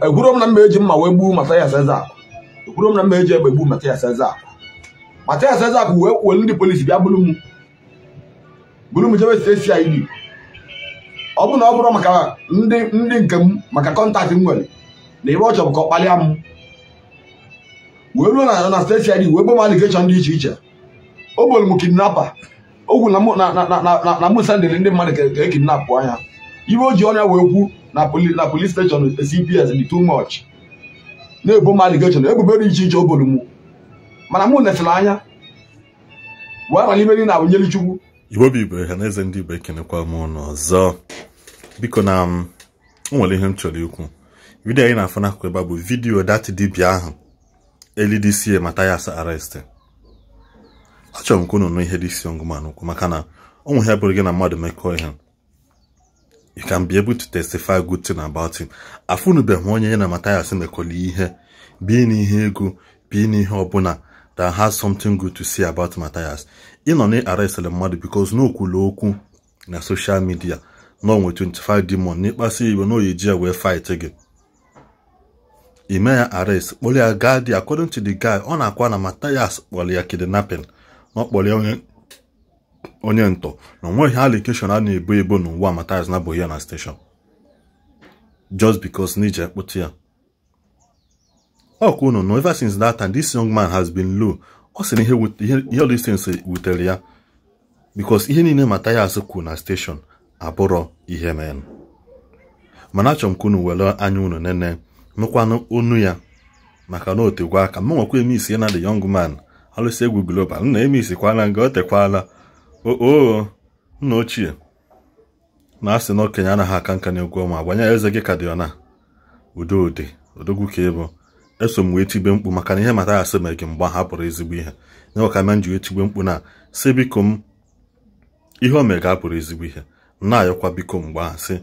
ekwuro m na mma eji mma wee gbuo Mathias Ezeaku ekwuro m na mma eji egbe gbuo akụ. Ezeaku Mathias akụ wee kwuo ndị polisi bịa buru m buru m jebe site si anyị ọ bụ na ọ bụrụ maka ndị ndị nke m maka kọntaktị m nwere na ebe ọ chọrọ ka ọ kpalịa m wee ruo na na steeti anyị wee gbom alikeshọn dị iche iche o bolu m kidnapa ogwu na mụ sendịrị ndị mmadụ ka e kidnapụ anya Ibe o ji ọnya wee kwu na police station CPS dị too much na-ebo m aligeshon ebubo dị iche iche obolu m mana mụ nefere anya wee rara imeri na awụnyere chukwu igbobi igbo ha na eze ndị igbo ekenekwa m ụnụ ọzọ biko na m nwere ihe m chọrọ ikwu vidiyo anyị na-afụ n'akụkụ ebe a bụ vidiyo dat dibịa ahụ elidc Mathias arrest achọrọ m ka unu nụ ihe dị isi ọngụmanụ ukwu maka na ọ nweghị abụrụ gị na mmadụ mekọọ ihe you can be able to testify good thing about him afụnubeghị onye ya na Matthias mekola ihe bi n'ihe ego bi n'ihe ọbụla that has something good to say about Matthias ị nọ na-arestịrị mmadụ because n'okwula okwu na social media na onwe 25 demon n'ịkpasu iwe na oyeji wee fight again ime ya arrest kpoli ya gadi according to the guy ọ na na Matthias kpọrọ ya kidnapping ọ ya onye ntọ na onweghị alikeshọn a na-ebo ebo n'ụwa na-abụghị ya na steshọn just because n'iji ekpụtụ ya ọ kwuo no ever since that time this young man has been low ọ sị na ihe olistens wutere ya bikos ihe niile azụ kwuru na steshọn abụrọ ihe men mana achọrọ m ka unu were anya unu nene nụkwanụ onu ya maka na otegwa aka m nwekwa emisi ya na the young man alụsi egwu global nna emisi kwala nga o tekwala oo nna ochie na asị na okenye anaghị aka nka na-egwu ọma gbanye eze gị ka dị ọna udo ụdị odogwu ka ịbụ eso m wee mkpu maka na ihe mata asị mere gị mgbe ha pụrụ ezigbo ihe nyewa ka m ji wee tigbe mkpu na si biko m ihe o mere ga apụrụ ezigbo ihe na-ayọkwa biko mgbe ahụ si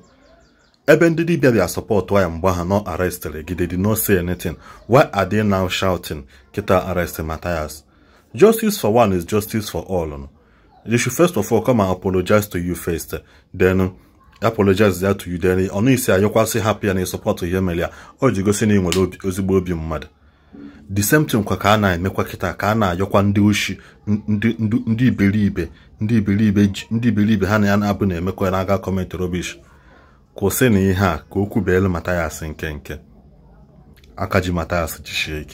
ebe ndị dibịa bịa sọpọtụ ya mgbe ha nọ arestịrị gide dị no say anything why are they now shouting kịta arestị Matthias justice for one is justice for all they should first of all come and apologize to you first then apologize there to you then ọ na-esi ayọkwasị hapụ ya na ịsọpọtụ ihe mere ya o ji gosi na ị nwere ozigbo obi mmadụ the same thing kwa ka a na-emekwa kịta ka a na-ayọkwa ndị oshi ndị iberibe ndị iberibe ndị iberibe ha na ya na-abụ na-emekwa na-aga kọment robish kwụsị na ihe a ka o kwubeelu Mathias nke nke aka ji Mathias jisie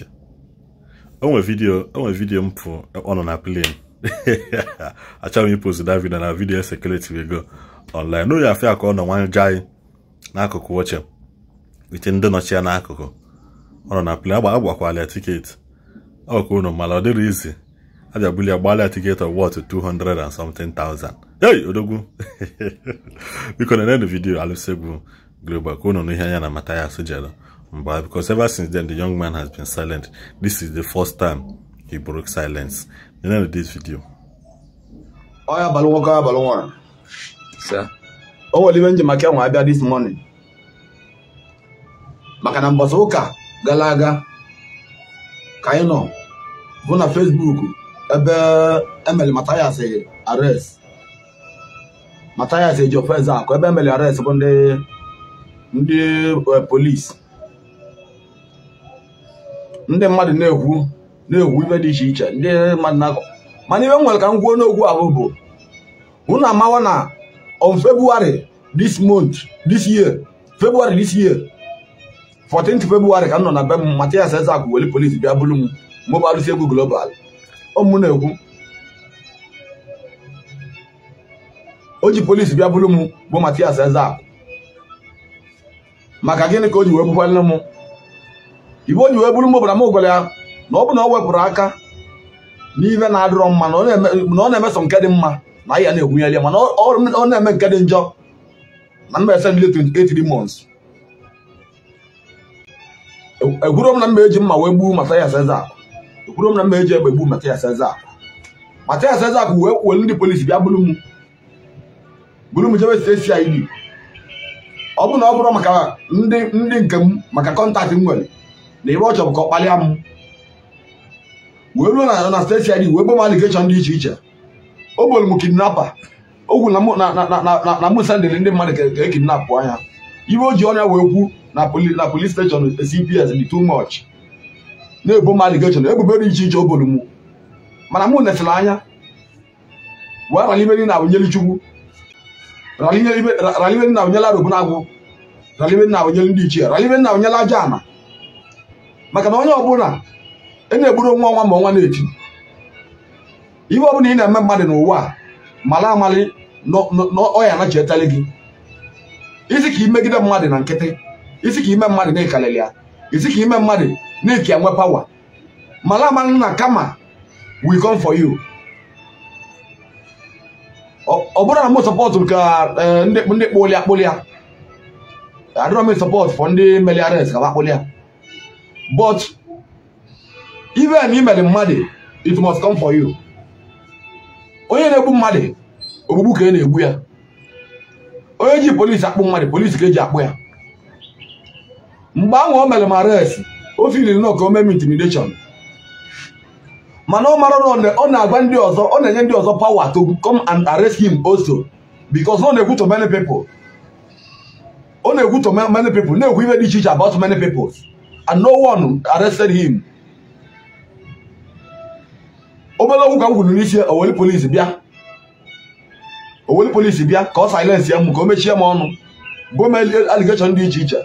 onwe vidiyo onwe vidiyo mpụ ọ nọ na plane achọrọ m ipost that na video security go online n'ụlọ ya afia ka ọ nọ nwanje anyị n'akụkụ oche ite ndị nọchi ya n'akụkụ ọ nọ na plane agba agbakwala tiketi ọ ka unu mara ọ dịrị izi abịabuli ya gbala tiketi of what 200 and something thousand hey odogwu biko na nend vidio alụsegwu global ka unu n'ihe anya na mata ya sojelo mba because ever since then the young man has been silent this is the first time he broke silence. The end of this video. Oya oh, Balwoka Balwan. Sir. O oh, were even Jamaica nwa abịa this morning. Maka na mbọsị ụka gara aga ka anyị nọ bụ na Facebook ebe emeli Mathias arrest. Mathias eji ofense ebe emeli arrest bụ ndị ndị eh, polisi. Ndị mmadụ na-ekwu na-ewu ife dị iche iche ndị mmadụ na-akọ mana iwe nwere ka m gwuo n'okwu ahụ bụ na amawa na on February this month this year February this year 14th February ka m nọ na be m Mathias Ezeaku weli polisi bịa bụrụ m mụ bụ arụsị egwu global ọmụ na-ekwu o ji polisi bịa bụrụ m bụ matias Ezeaku maka gịnị ka o ji wee bụkwalụ m ibe o ji wee bụrụ m bara m gwara ya na ọ bụ na ọ wepụrụ aka n'ime na-adịrọ mma na ọ na-emeso nke dị mma na ahịa na-egwunyere ya mana ọ na-eme nke dị njọ na mba ese ndị 28 months ekwuro m na mba eji mma wee gbuo Mathias Ezeaku ekwuro m na mba eji egbe gbuo Mathias Ezeaku Mathias Ezeaku wee kwuo ndị polisi bịa buru m buru m jebe CID ọ bụ na ọ bụrụ maka ndị ndị nke m maka kọntaktị m nwere na ebe ọ chọrọ ka ọ kpalịa m wee ruo na na steeti ID wee gbanwe aligeshọn dị iche iche o gboro m kidnapa ogwu na na mụ sendịrị ndị mmadụ ka e kidnapụ anya iwe o ji ọnya wee kwu na polis steshọn CPS dị too much na-ebo m aligeshọn ebubo dị iche iche o gboro m mana mụ netịrị anya wee ralibe na awụnyeli chukwu ralibe na awụnyela robonagwụ raliberi na awụnyeli ndị ichie raliberi na awụnyela aja ana maka na onye ọbụla na-egburu nwa nwa ma ọnwa na-eti ihe ọ bụla ị na-eme mmadụ n'ụwa a mara amalị na ọya anachietali gị isi ka imegide mmadụ na nkịtị isi ka ime mmadụ na-ekalịrị ya isi ka ime mmadụ na-eke nwe pawa mara amalị na kama we come for you ọ bụrụ na m sọpọtụ ka eh, ndị kpụlịa akpụlịa adịrọ m sọpọtụ fọ ndị meliares ka akpụlịa but even na i mere mmadụ it must come for you onye na-egbu mmadụ ogbugbu ka e na-egbu ya onye ji polisi akpụ mmadụ polisi ka eji akpụ ya mgbe ahụ o mere m arrest o filiri nọ ka o mee m intimidation mana ọ mara na ọ na-agwa ndị ọ na-enye ndị ọzọ power to come and arrest him also because ọ na-egwu to many people ọ na-egwu to many na-egwu dị iche iche about many peoples and no one arrested him obele ka m kwuru n'isi oweli polisi bịa oweli polisi bịa ka ọ silence ya m ka o mechie m ọnụ gọọmenti aligeshọn dị iche iche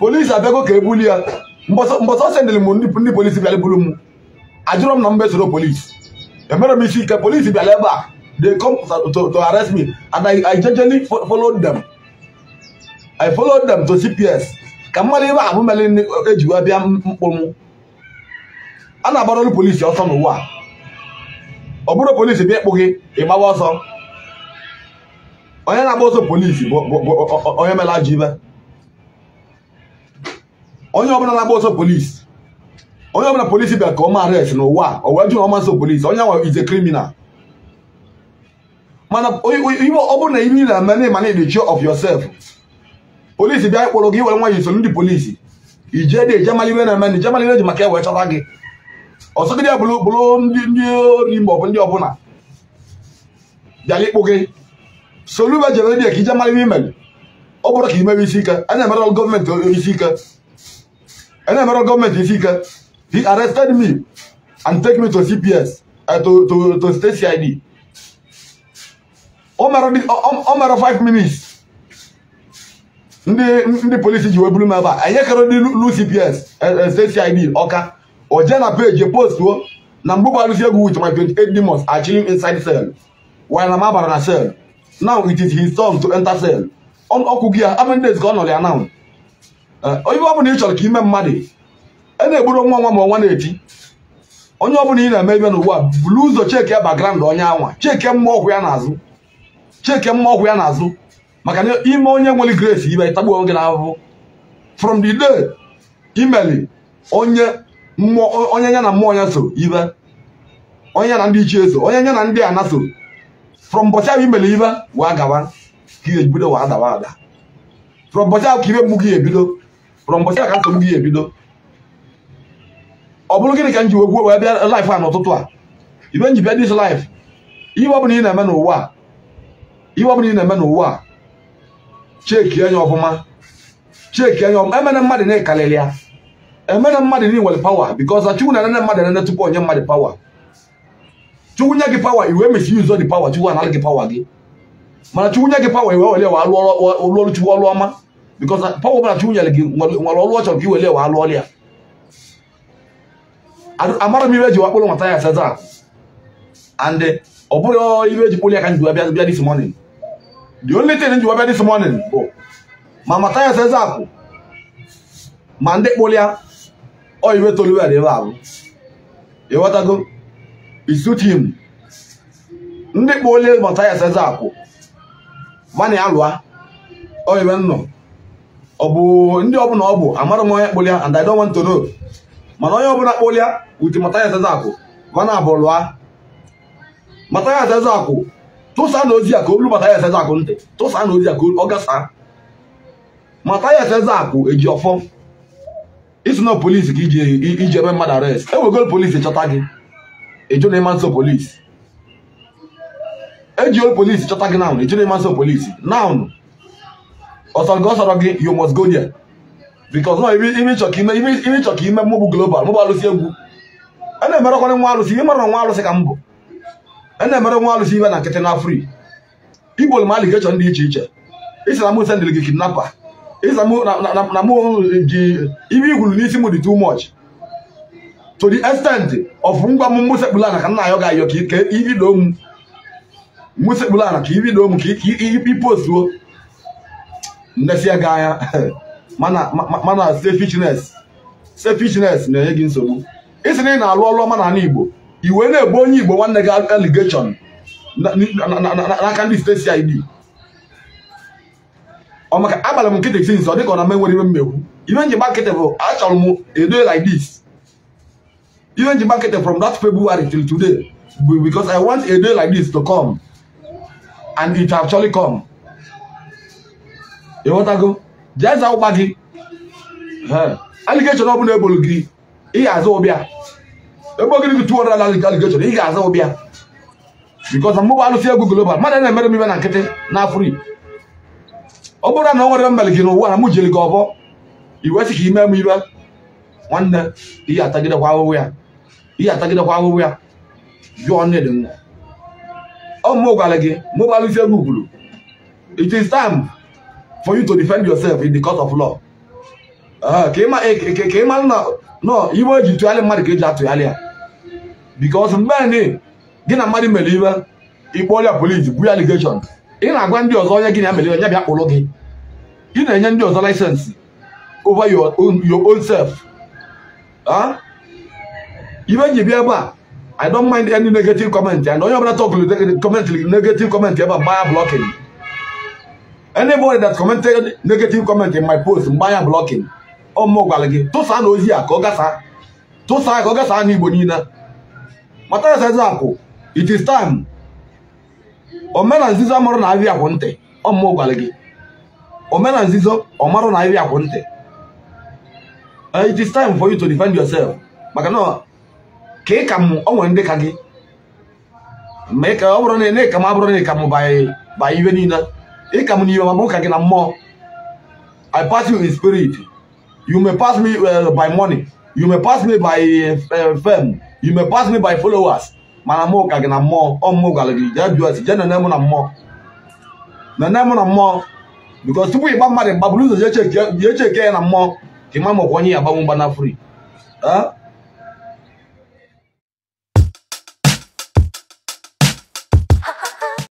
polisi abịago ka ebuli ya mbọsọ sendịrị m ndị polisi bịara buru m ajụrụ m na mba esoro polisi emere m isi ike polisi bịara ebe a they come to, arrest me and I, I jejely followed I followed them to CPS ka mmadụ ibe ahụ mele ejiwa bịa mkpụ a na-agbara ọrụ polisi ọsọ n'ụwa ọ bụrụ polisi bịa ịkpụ gị ịgbawa ọsọ onye na-agba ọsọ polisi bụ onye mela ajọ ibe onye ọbụla na-agba ọsọ polisi onye ọbụla polisi bịa ka ọ ma arrest n'ụwa o wee jụ ọma nso polisi onye nwe is a criminal mana ọ bụrụ na ihe na-eme na ịmana the of yourself polisi bịa ịkpụrụ gị were nwa yi so ndị polisi ije dị ije maliwe na-eme na ije maliwe ji maka e chọta gị ọsọgide bụlụbụlụ ndị ndị ori maọbụ ndị ọbụla bịara ikpụ gị soluba jere redio ka ije mara ihe imere ọ bụrụ ka imewe isi ike a na-emere gọọmenti eh, isi ike a na-emere gọọmenti isi ike he arrested me and take me to cps uh, eh, to, to, to state cid ọ mara 5 minutes ndị ndị polisi ji wee buru m ebe a anyị kere ndị lu cps eh, state cid ọka o jee na peji postuo na mgbe gbarụzi egwu with my 28 demons are chilling inside cell while na mabara na cell now it is his turn to enter cell ọkụ gị ya how days ka ọ nọrọ ya now onye ọbụla ị chọrọ ka ime mmadụ a na-egburu nwa nwa ma ọnwa na-eti onye ọbụla ị na-eme ibe n'ugbu a bulu ụzọ cheke ya background onye anwa cheke mma ọgwụ ya n'azụ cheke mma ọgwụ ya n'azụ maka na ime onye nwere grace ibe tagbuo gị n'ahụhụ from the day imeli onye onye ya na mmụọ ya so ibe onye ya na ndị ichie so onye ya na ndị ana so from ụbọchị ahụ imere ibe wee gawa ka ihe bido wee adawa ada from ụbọchị ahụ ka ibe mgbu gị ebido from ụbọchị ahụ ka nsogbu gị ebido ọ bụrụ gịnị ka m ji wegwuo wee bịa laif a n'ụtụtụ a ibe nji dis laif ihe ọ bụla ị na-eme n'ụwa a ihe ọ bụla ị na-eme n'ụwa a cheki anya e ọfụma cheki anya e ọfụma emere mmadụ na-ekalịrị ya emere mmadụ niwere pawa because na chukwu na nene mmadụ nene tupu onye mmadụ pawa chukwu nye gị pawa iwe mesi ụzọ dị pawa chukwu anara gị pawa gị mana chukwu nye gị pawa iwe were wa alụ ọrụ chukwu ọrụ ọma because pawa ọbụla chukwu nyere gị nwere ọrụ ọ chọrọ ka i were wa alụ ọrụ ya amara m ibe ji wakpụrụ nwata ya seza and ọ bụrụ ibe ji kpụrụ ya ka njiwa bịa this morning the only thing njiwa bịa this morning bụ ma mata ya seza kwụ ma ndị kpụrụ ya oyibe toluwel ebe a bụ ịghọtago isutim ndị kpa ole mata ya seze akwụ mana ya lụa oyibe nnọọ, ọ bụ ndị ọbụla ọ bụ amara m onye kpụlịa and I don't want to know mana onye ọbụla kpụlịa uti mata ya seze akwụ mana ya Mataya na ozi mata ya seze akụ ntị tụsa na eji ọfọ isi nọ polisi ka iji ebe mmadụ arrest ewegol polisi chọta gị ịjụ na ịma nso polisi eji ol polisi chọta gị naanụ ịjụ na ịma nso polisi naanụ ọsọrọ gị ọsọrọ gị you must go there because nọ ime ịchọ ka ime ime ịchọ ka ime mmụbụ global mụbụ alụsị egwu a na-emerekwara nwa alụsị ịmara nwa alụsị ka m bụ a na-emere nwa alụsị ibe na nkịtị na afri igbo lmali ga-echọ ndị iche iche isi na mụse ndịrị gị kidnapa na mụ ibe igwuru n'isi mụ dị too much to the extent of ngwa m mụsekpụla na ka nna ayọ ga-ayọ ka ibido m mụsekpụla na ka ibido m ka ipostuo ndesia gị anya mana selfishness na-enye gị nsogbu isi na ị na-alụ ọrụ ọma na Igbo iwe na-ebu onye Igbo nwanne gị allegation n'aka ndị steeti ID ọmaka agbara m nkịtị since ọ dị ka ọ na menwere iwe mmegbu iwe nji gbakịtị bụ achọrọ m edo like this iwe nji gbakịtị from that February till today bụ because I want a day like this to come and it actually come ịghọtago jee za ụgba gị aligeshon ọbụla ebolu gị ị ga-aza ụbịa ebe ogiri gị tuwo na aligeshon ị ga-aza ụbịa because mụbụ alụsị egwu global mmadụ na-emere m ibe na nkịtị na afrị ọ bụrụ na ọ nwere mmele gị n'ụwa na mụ jiri gị ọbọ iwe sị ka ime m iwe nwanne ihe atagidekwa ahụhụ ya ihe atagidekwa ahụhụ ya jụọ nne dị nwa ọ mụ gwara gị mụ isi gị ugburu it is time for you to defend yourself in the court of law ah, ka ị mara e, e, na nọ iwe eji tụgharị mmadụ ka eji atụgharị ya because mgbe gị na mmadụ mere iwe ikpọrọ ya polisi bu ya allegation ị na-agwa ndị ọzọ onye gị na-emere ya bịa kpụrụ gị ị na-enye ndị ọzọ laịsensị over your own self ibe ji bịa ebe a I don't mind any negative comment and onye ọbụla tọkụrụ comment negative comment ebe a mgbanya blocking anybody that commented negative comment in my post mgbanya blocking ọ mụ gwara gị tụsaa na ozi a ka ọ gasaa tụsaa ka ọ gasaa n'Igbo niile mata ya akụ, it is time omena nzizo amarụ na ahịa akwụ ntị ọmụmụ gwara gị omena nzizo ọmarụ na ahịa akwụ ntị eh, it is time for you to defend yourself maka na ka ị ka m ọ ndị ka gị ma ka ọ bụrụ na ị ka m abụrụ na ị ka m ba iwe niile ị ka m n'iwe ma mụ gị na mmụọ I pass you in spirit you may pass me eh, by money you may pass me by eh, fame you may pass me by followers mana mụ ka gị na mmụọ ọmụ gwara gị jee jụọ si jee nene mụ na mmụọ nene mụ na mmụọ bikos tupu ịgba mmadụ gbaburu ụzọ jee cheke ya na mmụọ ka ịma makwa onye ya agbanwe mgba na fri